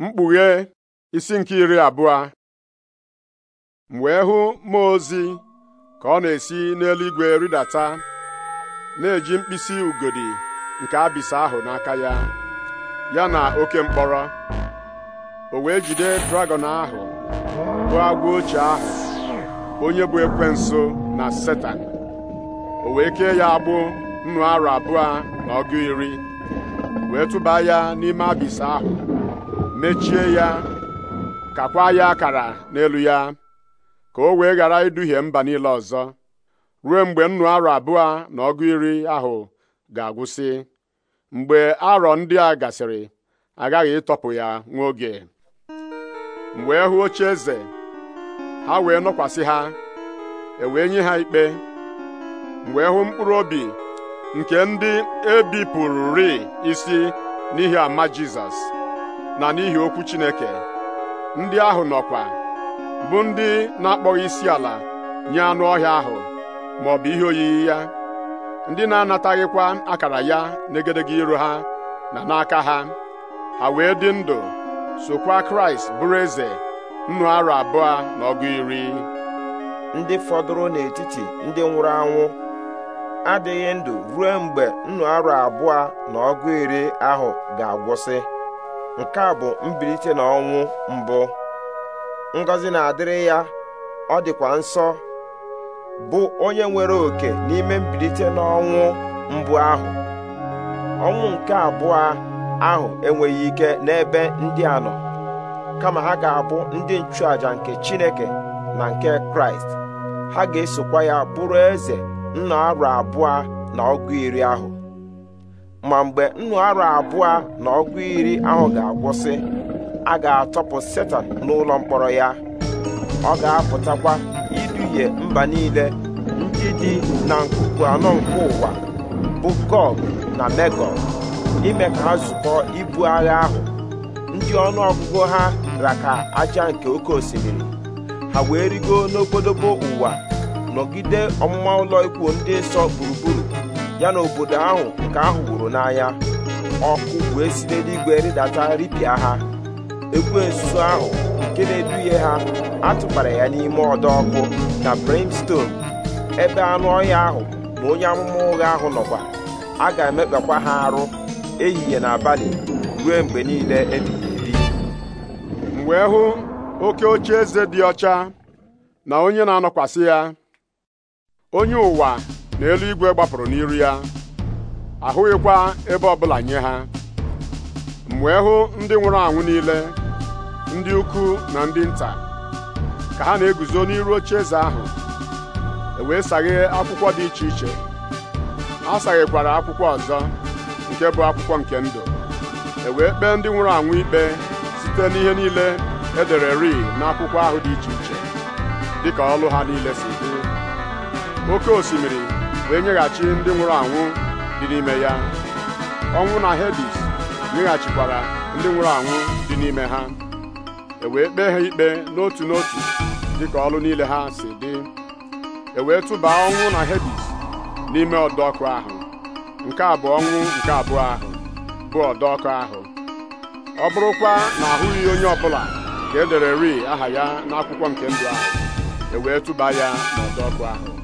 mkpughe isi nke iri abụọ m wee hụ mmụọ ozi ka ọ na-esi n'eluigwe rịdata na-eji mkpịsị ugodi nke abịsa ahụ n'aka ya ya na oke mkpọrọ o wee jide dragọn ahụ bụ agwa ochie ahụ onye bụ ekwensu na setan o wee kee ya agbụ nnụ arọ abụọ na ọgụ iri wee tụba ya n'ime abịsa ahụ mechie ya kakwa ya akara n'elu ya ka o wee ghara iduhie mba niile ọzọ ruo mgbe nnu arọ abụọ na ọgụ iri ahụ ga-agwụsị mgbe arọ ndị a gasịrị agaghị ịtọpụ ya nwa oge mgbe hụ oche eze ha wee nọkwasị ha e wee nye ha ikpe mgbe hụ mkpụrụ obi nke ndị e ri isi n'ihi ama Jizọs na n'ihi okwu Chineke ndị ahụ nọkwa bụ ndị na-akpọghị isi ala nye anụ ọhịa ahụ ma ọ bụ ihe oyiyi ya ndị na-anataghịkwa akara ya n'egedege iru ha na n'aka ha ha wee dị ndụ sokwa Kraịst bụrụ eze nnụ arọ abụọ na ọgụ iri ndị fọdụrụ n'etiti ndị nwụrụ anwụ adịghị ndụ ruo mgbe nnu arọ abụọ na ọgụ iri ahụ ga-agwụsị nke a bụ mbilite n'ọnwụ mbụ ngọzi na-adịrị ya ọ dịkwa nsọ bụ onye nwere oke n'ime mbilite n'ọnwụ mbụ ahụ ọnwụ nke abụọ ahụ enweghị ike n'ebe ndị a nọ kama ha ga-abụ ndị nchụàjà nke Chineke na nke Kraịst ha ga-esokwa ya bụrụ eze nna arụ abụọ na ọgụ iri ahụ ma mgbe nnu abụọ na ọgụ iri ahụ ga-agwụsị a ga-atọpụ setan n'ụlọ mkpọrọ ya ọ ga-apụtakwa iduhie mba niile ndị dị na nkuku anọ nke ụwa bụ Gog na Megog ime ka ha zukọọ ibu agha ahụ ndị ọnụ ọgụgụ ha raka aja nke oke osimiri ha wee rigo n'obodobo ụwa nọgide ọmụma ụlọ ikwu ndị nsọ gburugburu ya na obodo ahụ nke ahụ n'anya ọkụ wee si n'eluigwe rịdata ripịa ha egwu ekwensu ahụ nke na-eduhie ha atụbara ya n'ime ọdọ ọkụ na brimstone ebe anụ ọhịa ahụ na onye amụma ụgha ahụ nọkwa a ga-emekpakwa ha arụ ehihie na abalị ruo mgbe niile ebighị ebi m wee hụ oke oche eze dị ọcha na onye na-anọkwasị ya onye ụwa n'elu igwe gbapụrụ n'iru ya ahụghịkwa ebe ọbụla nye ha m wee hụ ndị nwụrụ anwụ niile ndị ukwu na ndị nta ka ha na-eguzo n'iru oche eze ahụ e wee saghee akwụkwọ dị iche iche a saghekwara akwụkwọ ọzọ nke bụ akwụkwọ nke ndụ e wee kpee ndị nwụrụ anwụ ikpe site n'ihe niile edere ri n'akwụkwọ ahụ dị iche iche dịka ọlụ ha niile si dị oke osimiri wee nyeghachi ndị nwụrụ anwụ dị n'ime ya ọnwụ na Hedis nyeghachikwara ndị nwụrụ anwụ dị n'ime ha e wee kpee ha ikpe n'otu n'otu dịka ọrụ niile ha si dị e wee tụbaa ọnwụ na Hedis n'ime ọdọkụ ahụ nke a bụ ọnwụ nke abụọ ahụ bụ ọdọkụ ahụ ọ bụrụkwa na ahụghị onye ọbụla ka e dere ri aha ya n'akwụkwọ nke ndụ ahụ e wee tụba ya n'ọdọ ahụ